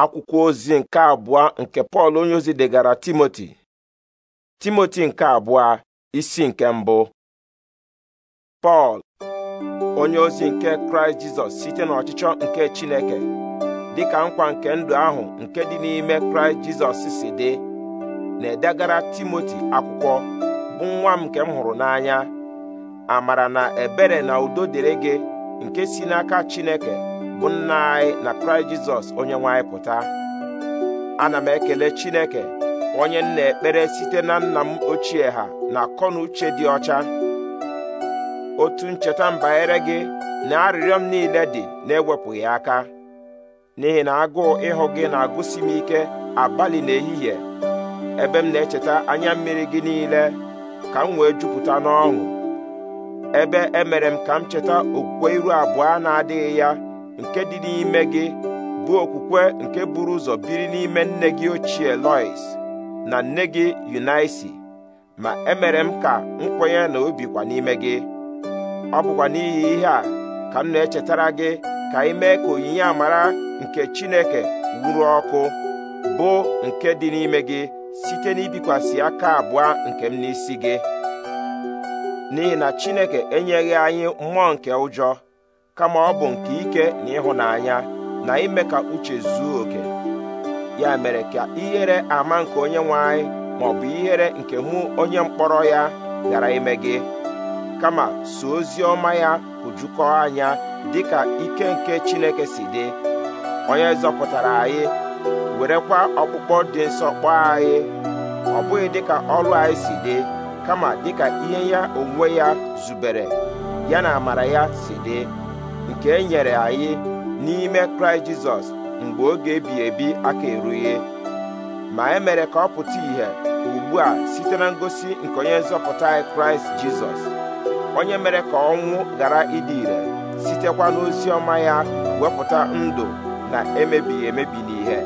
akwụkwọ ozi nke abụọ nke pọl onyeozi ozi degara timoti timoti nke abụọ isi nke mbụ pọl onye ozi nke kraịst jizọs site n'ọchịchọ nke chineke dị ka nkwa nke ndụ ahụ nke dị n'ime kraịst jizọs si dị na-edegara timoti akwụkwọ bụ nwa m nke m hụrụ n'anya amara na ebere na udo dịrị gị nke si n'aka chineke bụ nna anyị na kraịst jizọs onye nwe anyị pụta ana m ekele chineke onye m na-ekpere site na nna m ochie ha na akọ uche dị ọcha otu ncheta mbanyere gị na arịrịọ m niile dị na-ewepụghị aka n'ihi na agụụ ịhụ gị na-agụsi m ike abalị na ehihie ebe m na-echeta anya mmiri gị niile ka m wee jupụta n'ọṅụ ebe emere m ka m cheta okwukwe iru abụọ na-adịghị ya nke dị n'ime gị bụ okwukwe nke buru ụzọ biri n'ime nne gị ochie Lois na nne gị Yunaisi ma emere m ka m kwenye na obi n'ime gị ọ bụkwa n'ihi ihe a ka m na-echetara gị ka ị ka onyinye amara nke Chineke wuru ọkụ bụ nke dị n'ime gị site n'ibikwasị aka abụọ nke m n'isi gị n'ihi na Chineke enyeghị anyị mmụọ nke ụjọ kama ọ bụ nke ike na ịhụnanya na ime ka uche zuo oke ya mere ka ihere ama nke onye nwe anyị ma bụ ihere nke mụ onye mkpọrọ ya ghara ime gị kama so ozi ọma ya hụjukọọ anya dịka ike nke Chineke si dị onye zọpụtara anyị werekwa ọkpụkpọ dị nsọ kpọọ anyị ọ bụghị dịka ọrụ anyị si dị kama dịka ihe ya onwe ya zubere ya na amara ya si dị nke e nyere anyị n'ime kraịst jizọs mgbe oge ebi ebi aka erughị ma e mere ka ọ pụta ìhè ugbu a site na ngosi nke onye nzọpụta anyị kraịst jizọs onye mere ka ọnwụ ghara ịdị ire sitekwa n'ozi ọma ya wepụta ndụ na emebighị emebi n'ihe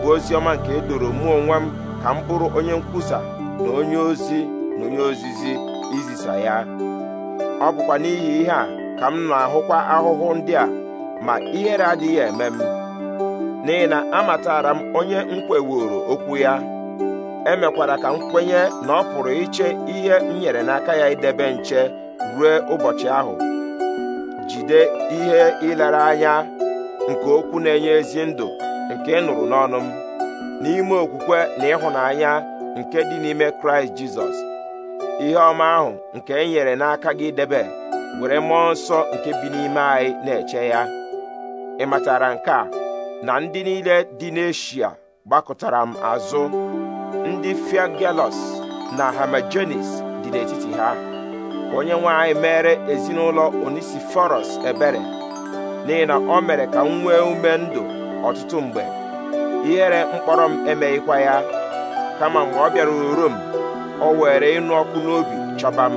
bụ ozi ọma nke e doro mụ onwe m ka m bụrụ onye nkwusa na onye ozi na onye ozizi izisa ya ọ bụkwa n'ihi ihe a ka m na-ahụkwa ahụhụ ndị a ma ihere adịghị eme m n'ihi na amatara m onye m okwu ya emekwara ka m kwenye na ọ pụrụ iche ihe m nyere n'aka ya idebe nche ruo ụbọchị ahụ jide ihe ịlara anya nke okwu na-enye ezi ndụ nke ịnụrụ nụrụ n'ọnụ m n'ime okwukwe na ịhụnanya nke dị n'ime kraịst jizọs ihe ọma ahụ nke e nyere n'aka gị debe were mmụọ nsọ nke bi n'ime anyị na-eche ya ị matara nke a na ndị niile dị n'eshia gbakọtara m azụ ndị fiagelos na hamajenis dị n'etiti ha onye nwe anyị mere ezinụlọ onisiforos ebere n'ihi na o mere ka m nwee ume ndụ ọtụtụ mgbe ihere mkpọrọ m emeghịkwa ya kama mgbe ọ bịara uru o were ịnụ ọkụ n'obi chọba m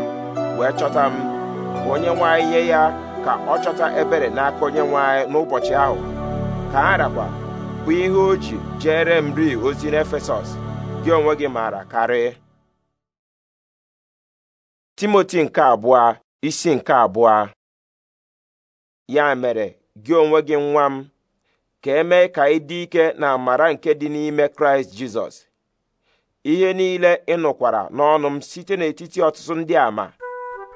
wee chọta m onye nwe ihe nye ya ka ọ chọta ebere n'aka onye nwe n'ụbọchị ahụ ka ha bụ ihe o ji jere m ri ozi n'efesọs gị onwe gị maara karị timoti nke abụọ isi nke abụọ ya mere gị onwe gị nwa m ka eme ka ị dị ike na amara nke dị n'ime kraịst jizọs ihe niile ị nụkwara n'ọnụ m site n'etiti ọtụtụ ndị ama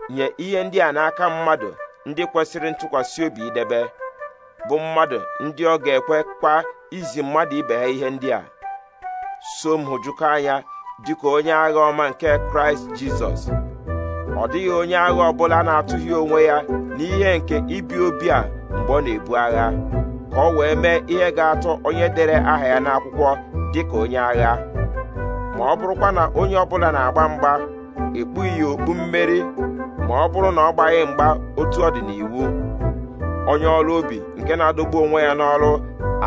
nye ihe ndị a n'aka mmadụ ndị kwesịrị ntụkwasị obi idebe bụ mmadụ ndị ọ ga-ekwekwa izi mmadụ ibe ha ihe ndị a so m hụjụkọ anya dịka onye agha ọma nke kraịst jizọs ọ dịghị onye agha ọbụla na-atụghị onwe ya n'ihe nke ibi obi a mgbe ọ na-ebu agha ka ọ wee mee ihe ga-atọ onye dere aha ya n'akwụkwọ dịka onye agha ma ọ bụrụkwa na onye ọbụla na-agba mgba ekpughị ya okpu mmeri ma ọ bụrụ na ọ gbaghị mgba otu ọ dị n'iwu onye ọrụ ubi nke na-adọgbu onwe ya n'ọrụ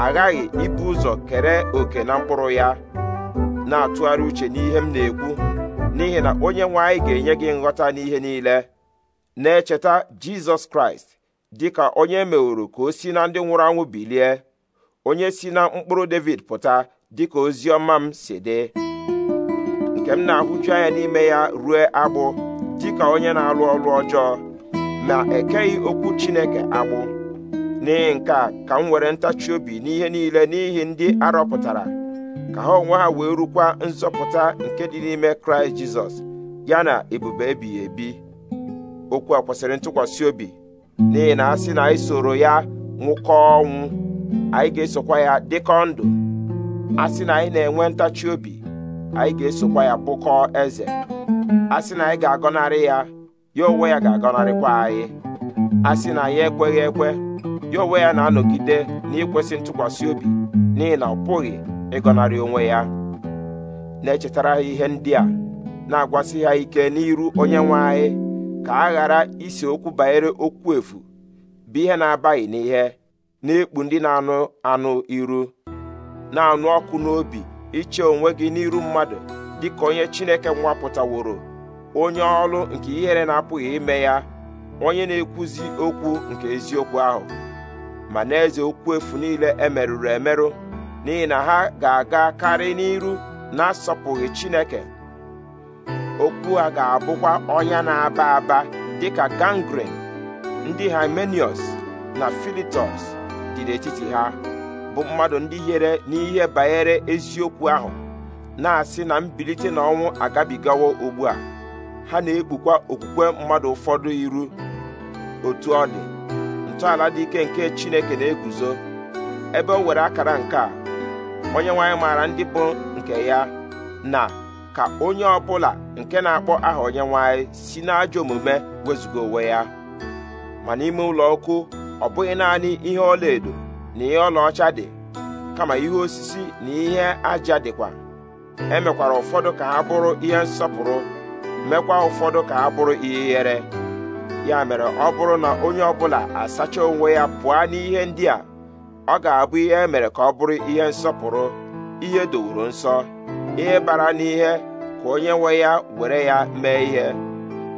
aghaghị ibu ụzọ kere òkè na mkpụrụ ya na-atụgharị uche n'ihe m na-ekwu n'ihi na onye nwe anyị ga-enye gị nghọta n'ihe niile na-echeta Jizọs Kraịst dị ka onye e meworo ka o si na ndị nwụrụ anwụ bilie onye si na mkpụrụ David pụta dị ka ozi ọma m si dị nke m na-ahụju anya n'ime ya rue agbụ dịka onye na-alụ ọrụ ọjọọ ma ekeghị okwu Chineke agbụ n'ihi nke a ka m were ntachi obi n'ihe niile n'ihi ndị arọpụtara ka ha onwe ha wee rukwa nzọpụta nke dị n'ime Kraịst Jizọs ya na ebube ebighị ebi okwu a kwesịrị ntụkwasị obi n'ihi na a sị na anyị soro ya nwụkọ ọnwụ anyị ga-esokwa ya dịkọ ndụ a sị na anyị na-enwe ntachi obi anyị ga-esokwa ya bụkọọ eze a sị na anyị ga-agọnarị ya ya onwe ya ga-agọnarịkwa anyị a sị na anyị ekweghị ekwe ya onwe ya na-anọgide n'ikwesị ntụkwasị obi n'ihi na ọ pụghị ịgọnarị onwe ya na-echetara ha ihe ndị a na-agwasị ha ike n'iru onye nwe anyị ka a ghara isi okwu banyere okwu efu bụ ihe na-abaghị n'ihe na-ekpu ndị na-anụ anụ iru na-anụ ọkụ n'obi iche onwe gị n'iru mmadụ dịka onye Chineke nwapụtaworo onye ọrụ nke ihere na-apụghị ime ya onye na-ekwuzi okwu nke eziokwu ahụ ma n'eze okwu efu niile emerụrụ emerụ n'ihi na ha ga-aga karị n'iru na-asọpụghị Chineke okwu a ga-abụkwa ọnya na-aba aba dịka gangrene ndị Hymenius na Philetus dị n'etiti ha bụ mmadụ ndị hiere n'ihe banyere eziokwu ahụ na-asị na mbilite na ọnwụ agabigawo ugbu a ha na-ekpukwa okwukwe mmadụ ụfọdụ iru otu ọ dị ntọala dị ike nke Chineke na-eguzo ebe o were akara nke a onye nwanyị maara ndị bụ nke ya na ka onye ọbụla nke na-akpọ aha onye nwanyị si n'ajọ omume wezụga onwe ya ma n'ime ụlọ ọkụ ọ bụghị naanị ihe ọla edo na ihe ọlaọcha dị kama ihe osisi na ihe aja dịkwa emekwara ụfọdụ ka ha bụrụ ihe nsọpụrụ mekwa ụfọdụ ka ha bụrụ ihe ihere ya mere ọ bụrụ na onye ọbụla asacha onwe ya pụọ n'ihe ndị a ọ ga-abụ ihe e mere ka ọ bụrụ ihe nsọpụrụ ihe dowuru nsọ ihe bara n'ihe ka onye nwe ya were ya mee ihe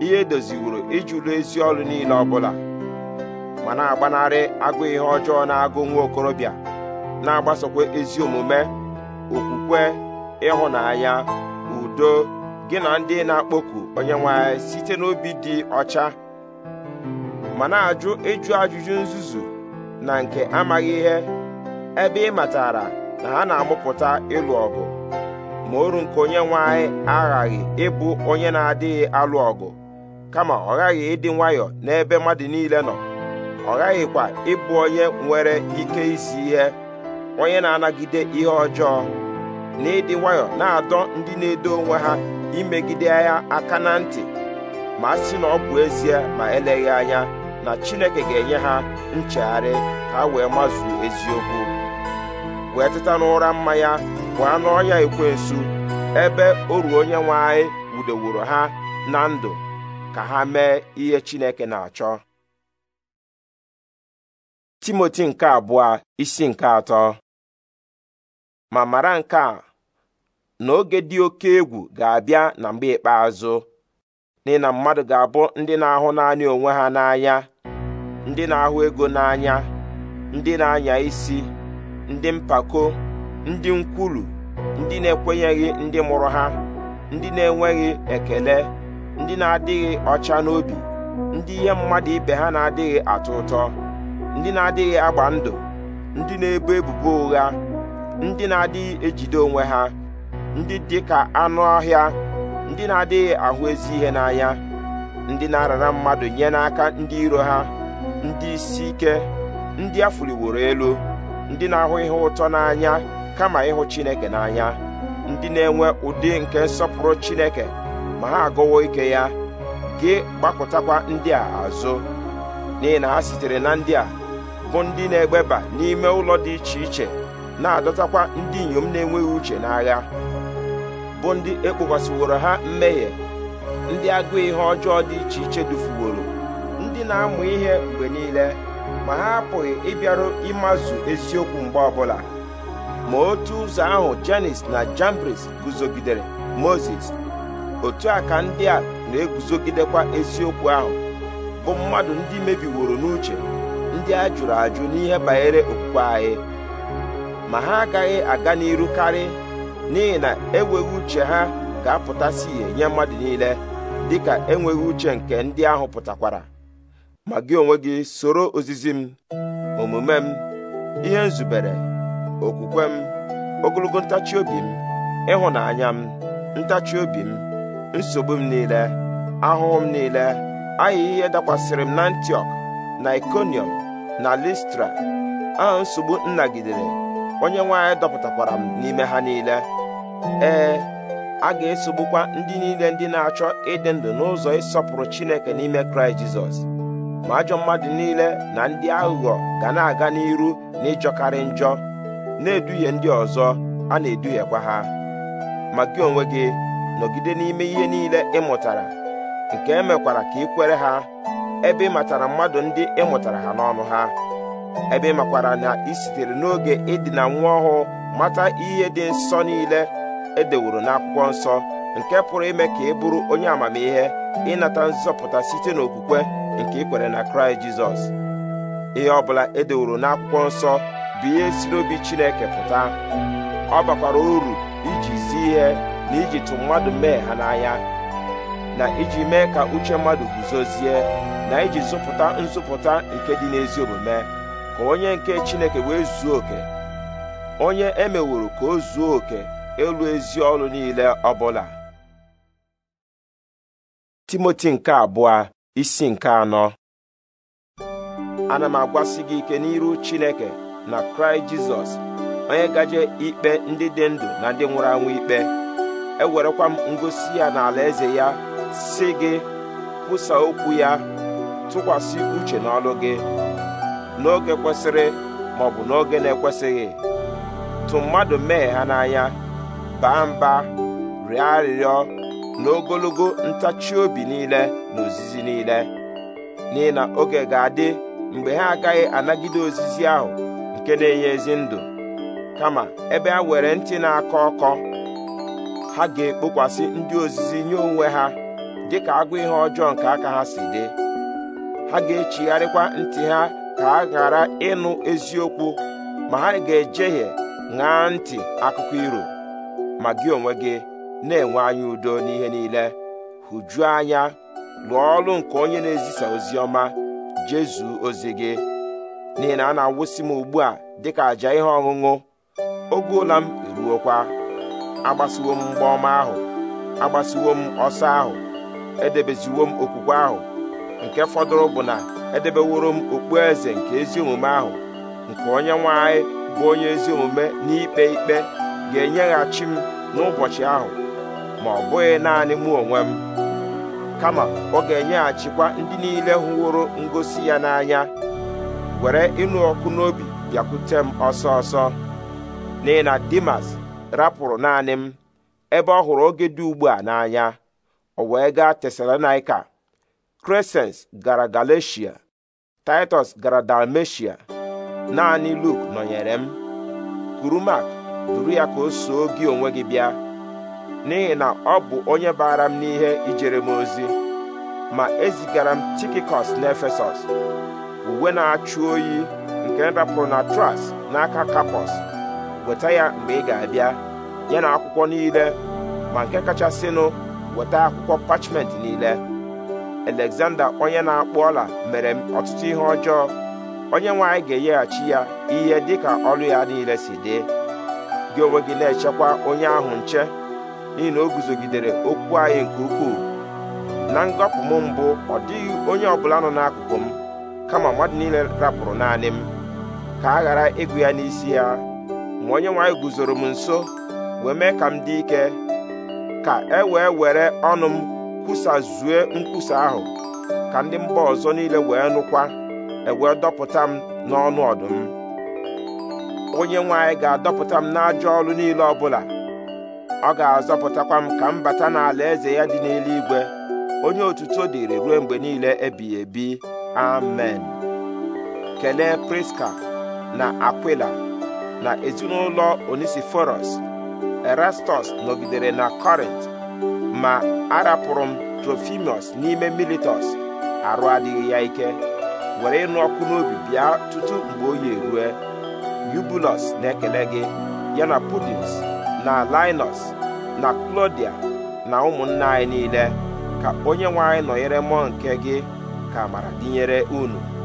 ihe e doziwuru ijụrụ ezi ọrụ niile ọbụla ma na-agbanarị agụ ihe ọjọọ na-agụ nwa okorobịa na-agbasokwa ezi omume okwukwe ịhụnanya udo gị na ndị na-akpọku onye nwanyị site n'obi dị ọcha ma na-ajụ ịjụ ajụjụ nzuzu na nke amaghị ihe ebe ị matara na ha na-amụpụta ịlụ ọgụ ma oru nke onye nwanyị aghaghị ịbụ onye na-adịghị alụ ọgụ kama ọ ghaghị ịdị nwayọọ n'ebe mmadụ niile nọ ọ ghaghịkwa ịbụ onye nwere ike isi ihe onye na-anagide ihe ọjọọ na ịdị nwayọ na-adọ ndị na-edo onwe ha imegide ya aka na ntị ma sị na ọ bụ ezie ma eleghị anya na Chineke ga-enye ha nchegharị ka wee mazuo eziokwu wee teta n'ụra mmanya bụ anụ ọnya ekwensu ebe oru onye nwe anyị wudeworo ha na ndụ ka ha mee ihe Chineke na-achọ timoti nke abụọ isi nke atọ ma mara nke a na oge dị oke egwu ga-abịa na mgbe ikpeazụ n'ihi na mmadụ ga-abụ ndị na-ahụ naanị onwe ha n'anya ndị na-ahụ ego n'anya ndị na-anya isi ndị mpako ndị nkwulu ndị na-ekwenyeghị ndị mụrụ ha ndị na-enweghị ekele ndị na-adịghị ọcha n'obi ndị ihe mmadụ ibe ha na-adịghị atọ ụtọ ndị na-adịghị agba ndụ ndị na-ebo ebubo ụgha ndị na-adịghị ejide onwe ha ndị dị ka anụ ọhịa ndị na-adịghị ahụ ezi ihe n'anya ndị na-arara mmadụ nye n'aka ndị iro ha ndị isi ike ndị a elu ndị na-ahụ ihe ụtọ n'anya kama ịhụ Chineke n'anya ndị na-enwe ụdị nke nsọpụrụ Chineke ma ha agụwo ike ya gị gbapụtakwa ndị a azụ n'ihi na ha sitere na ndị a bụ ndị na-egbeba n'ime ụlọ dị iche iche na-adọtakwa ndị inyom na-enweghị uche n'agha bụ ndị ekpokwasịworo ha mmehie ndị agụụ ihe ọjọọ dị iche iche dufuworo ndị na-amụ ihe mgbe niile ma ha apụghị ịbịaru ịmazụ eziokwu mgbe ọbụla ma otu ụzọ ahụ Janis na jambris guzogidere Moses otu a ka ndị a na-eguzogidekwa eziokwu ahụ bụ mmadụ ndị mebiworo n'uche ndị a jụrụ ajụ n'ihe banyere okwukwe anyị ma ha agaghị aga n'iru karị n'ihi na enweghị uche ha ga-apụtasị ihe nye mmadụ niile dịka enweghị uche nke ndị ahụ pụtakwara ma gị onwe gị soro ozizi m omume m ihe nzubere okwukwe m ogologo ntachi obi m ịhụnanya m ntachi obi m nsogbu m niile ahụhụ m niile ahịa ihe dakwasịrị m na Antiọk na ikonium. na listra a nsogbu nnagidere onye nwe anyị dọpụtakwara m n'ime ha niile ee a ga-esogbukwa ndị niile ndị na-achọ ịdị ndụ n'ụzọ ịsọpụrụ chineke n'ime kraịst jizọs ma ajọ mmadụ niile na ndị aghụghọ ga na-aga n'iru na ịjọkarị njọ na-eduhie ndị ọzọ a na-eduhiekwa ha ma gị onwe gị nọgide n'ime ihe niile ị mụtara nke emekwara ka ị kwere ha ebe ị matara mmadụ ndị ị mụtara ha n'ọnụ ha ebe ị makwara na ị sitere n'oge ịdịna nwa ọhụụ mata ihe dị nsọ niile edeworo n'akwụkwọ nsọ nke pụrụ ime ka ị bụrụ onye amamihe ịnata nzọpụta site n'okwukwe nke ikwere na kraịst jizọs ihe ọ bụla edeworo n'akwụkwọ nsọ bụ ihe si n'obi chineke pụta ọ bakwara uru iji si ihe na iji tụ mmadụ mee ha n'anya na iji mee ka uche mmadụ guzozie na iji zụpụta nzụpụta nke dị n'ezi omume ka onye nke Chineke wee zuo oke onye emeworo ka o zuo oke elu ezi ọrụ niile ọ bụla Timoti nke abụọ isi nke anọ ana m agwasị gị ike n'iru Chineke na Kraịst Jizọs onye gaje ikpe ndị dị ndụ na ndị nwụrụ anwụ ikpe ewerekwa m ngosi ya na eze ya si gị kwusa okwu ya tụkwasị uche n'ọlụ gị n'oge kwesịrị ma ọ bụ n'oge na-ekwesịghị tụ mmadụ mee ha n'anya baa mba rịọ arịrịọ na ntachi obi niile na ozizi niile n'ihi na oge ga-adị mgbe ha agaghị anagide ozizi ahụ nke na-enye ezi ndụ kama ebe ha were ntị na-akọ ọkọ ha ga-ekpokwasị ndị ozizi nye onwe ha dịka agụ ihe ọjọọ nke aka ha si dị ha ga-echigharịkwa ntị ha ka ha ghara ịnụ eziokwu ma ha ga-ejehie ṅaa ntị akụkọ iro ma gị onwe gị na-enwe anya udo n'ihe niile hụjuo anya lụọ ọrụ nke onye na-ezisa ozi ọma jezu ozi gị n'ihi na a na-awụsị m ugbu a dịka àjà ihe ọṅụṅụ oge ụla m eruokwa agbasiwo m mgba ọma ahụ agbasiwo m ọsọ ahụ edebeziwo m okwukwe ahụ nke fọdụrụ bụ na edebeworo m okpueze nke ezi omume ahụ nke onye nwanyị bụ onye ezi omume n'ikpe ikpe ga-enyeghachi m n'ụbọchị ahụ ma ọ bụghị naanị mụ onwe m kama ọ ga-enyeghachikwa ndị niile hụworo ngosi ya n'anya were ịnụ ọkụ n'obi bịakwute m ọsọ ọsọ n'ihi na Dimas rapụrụ naanị m ebe ọ hụrụ oge dị ugbu a n'anya o wee gaa tesalonaika crescens gara galatia titus gara dalmatia naanị luk nọnyere m kuru duru ya ka o soo gị onwe gị bịa n'ihi na ọ bụ onye baara m n'ihe ijere m ozi ma ezigara m tikikọs n'efesọs uwe na-achụ oyi nke na na tras n'aka kapọs weta ya mgbe ị ga-abịa ya na akwụkwọ niile ma nke kachasịnụ weta akwụkwọ pachment niile Alexander onye na-akpụ ọla mere m ọtụtụ ihe ọjọọ onye nwanyị ga-enyeghachi ya ihe dịka ọrụ ya niile si dị gị onwe gị na-echekwa onye ahụ nche n'ihi na o guzogidere okwu anyị nke ukwuu na ngọpụ m mbụ ọ dịghị onye ọbụla nọ n'akụkụ m kama mmadụ niile rapụrụ naanị m ka a ghara ịgụ ya n'isi ya ma onye nwe guzoro m nso wee mee ka m dị ike ka e wee were ọnụ m kwusazue nkwusa ahụ ka ndị mba ọzọ niile wee nụkwa ewee dọpụta m n'ọnụ ọdụm onye nwanyị ga-adọpụta m n'ajọ ọrụ niile ọbụla ọ ga-azọpụtakwa m ka m bata n'ala eze ya dị n'eluigwe onye otuto dịrị ruo mgbe niile ebighị ebi amen kelee priska na akwila na ezinụlọ onisiforos erastus nọgidere na kọrint ma arapụrụ m trofimus n'ime militus arụ adịghị ya ike were ịnụ ọkụ n'obi bịa tutu mgbe oyi erue yubulus na-ekele gị yana pudins na linus na klodia na ụmụnna anyị niile ka onye nwe anyị nọnyere mmụọ nke gị ka amara dịnyere unu